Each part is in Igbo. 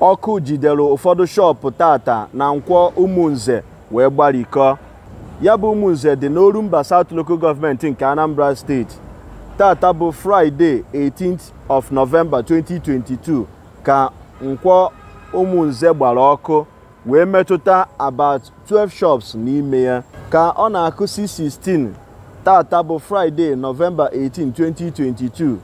ọkụ jidere ụfọdụ shọpụ tata na nkwọ ụmụnze wee gbarikọọ ya bụ ụmụnze dị n'Oru Mba South Local Government nke Anambra Steeti. tata bụ Fraịde 18th of November 2022 ka nkwọ ụmụnze gbara ọkụ wee metụta about 12 shops n'ime ya ka ọ na-akụsi 16 tata bụ Fraịde novemba 18 2022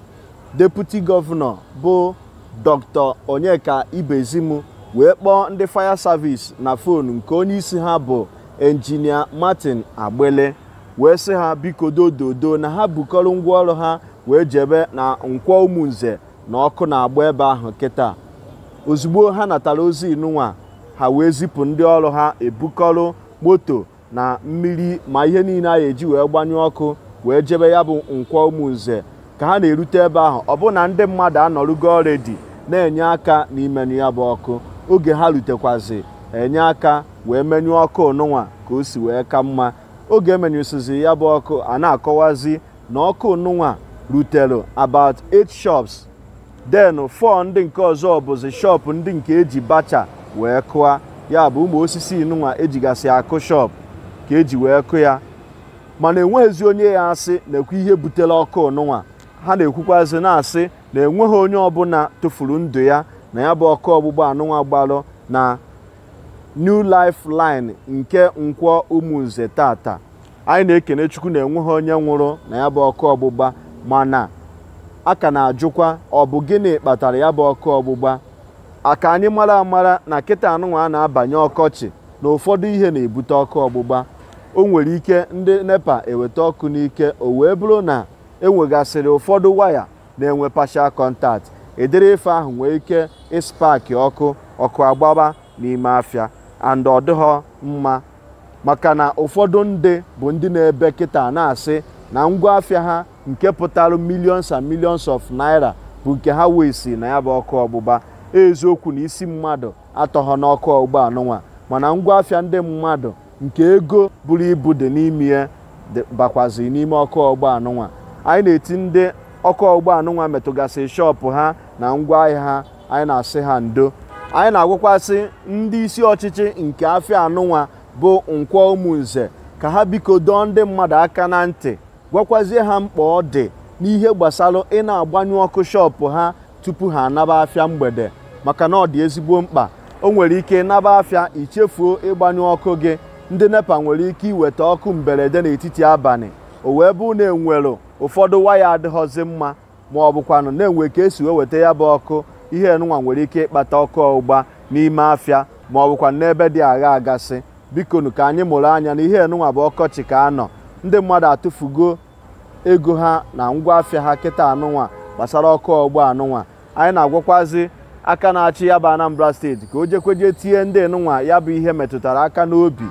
deputi gọvanọ bụ dr onyeka ibezim wee kpọọ ndị fire service na fonu nke onye isi ha bụ enjinia martin agbele wee sị ha biko dododo na ha bukọrọ ngwaọrụ ha wee jebe na nkwọ ụmụnze na ọkụ na-agba ebe ahụ kịta ozugbo ha natara ozi inụnwa ha wee zipụ ndị ọrụ ha ebukọrọ moto na mmiri ma ihe niile a ga-eji wee gbanye ọkụ wee jebe ya bụ nkwọ ụmụnze ka ha na-erute ebe ahụ ọ bụ na ndị mmadụ anọrụgo ọredi na-enye aka n'ime ya bụ ọkụ oge ha rutekwazi enye aka wee menyụọ ọkụ onụnwa ka o si wee ka mma oge emenyụsizi ya bụ ọkụ a na-akọwazi na ọkụ onụnwa rutelu about eight shops den 4 ndị nke ọzọ bụzi shop ndị nke eji bacha wee kụa ya bụ ụmụ osisi inụnwa ejigasị akụ shop ka eji wee kụ ya mana enweghịzi onye ya asị nekwa ihe butere ọkụ onụnwa ha na-ekwukwazị na-asị na enweghị onye ọbụla tụfuru ndụ ya na ya bụ ọkụ ọgbụgba anụnwa gbalụ na New Life Line nke nkwọ ụmụnze tata anyị na-ekene Chukwu na enweghị onye nwụrụ na ya bụ ọkụ ọgbụgba mana a ka na-ajụkwa ọ bụ gịnị kpatara ya bụ ọkụ ọgbụgba aka anyị mara amara na kịta anụnwa a na-abanye ọkọchị na ụfọdụ ihe na-ebute ọkụ ọgbụgba o nwere ike ndị nepa eweta ọkụ n'ike o wee bụrụ na enwegasịrị ụfọdụ waya na-enwe partial contact edere ahụ nwee ike ịspaki ọkụ ọkụ agbaba n'ime afịa and ọ mma maka na ụfọdụ ndị bụ ndị na-ebe kịta na-asị na ngwa afịa ha nke pụtara milions and millions of naira bụ nke ha wee na ya bụ ọkụ ọgbụgba eziokwu na isi mmadụ atọghọ n'ọkụ ọgbụgba anụnwa mana ngwa afia ndị mmadụ nke ego buru ibu dị n'ime ya bakwazi n'ime ọkụ ọgbụgba anụnwa anyị na-eti ndị ọkụ ọgbọ anụnwa metụgasị shọpụ ha na ngwa ahịa ha anyị na-asị ha ndo anyị na-agwakwasị ndị isi ọchịchị nke afịa anụnwa bụ nkwọ ụmụnze ka ha biko dọọ ndị mmadụ aka na ntị gwakwazie ha mkpa ọ dị n'ihe gbasara ị na-agbanyụ ọkụ shọpụ ha tupu ha anaba afịa mgbede maka na ọ dị ezigbo mkpa o nwere ike naba afịa ichefuo ịgbanyụ ọkụ gị ndị nepa nwere ike iweta ọkụ mberede n'etiti abalị o wee bụ na enwelu ụfọdụ waya adịghọzi mma ma ọ bụkwanụ na-enwe ka esi wee weta ya bụ ọkụ ihe nwa nwere ike ịkpata ọkụ ọgbụgba n'ime afịa ma ọ bụkwa n'ebe dị agha agasị bikonu ka anyị mụrụ anya na ihe nwa bụ ọkọchị ka anọ ndị mmadụ atụfugo ego ha na ngwa afịa ha kịta anụnwa gbasara ọkụ ọgbụ anụnwa anyị na-agwakwazi aka na-achị ya bụ Anambra steeti ka o jekweje tie ndị nụnwa ya bụ ihe metụtara aka n'obi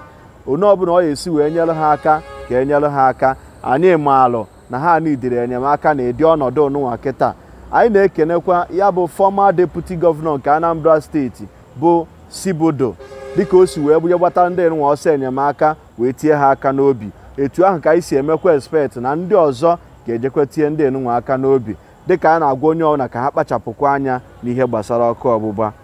onye ọbụla ọ ya esi wee nyere ha aka ka e nyere ha aka anyị maalụ na ha nidiri enyemaka na ịdị ọnọdụ n'ụwa kịta anyị na-ekenekwa ya bụ fọma deputi gọvanọ nke Anambra steeti bụ Sibodo dịka o si wee bunye gbata ndị nwa ọsọ enyemaka wee tie ha aka n'obi etu ahụ ka anyị si emekwa expect na ndị ọzọ ga-ejekwa tie ndị nwa aka n'obi dịka a na-agwa onye ọbụla ka ha kpachapụkwa anya n'ihe gbasara ọkụ ọgbụgba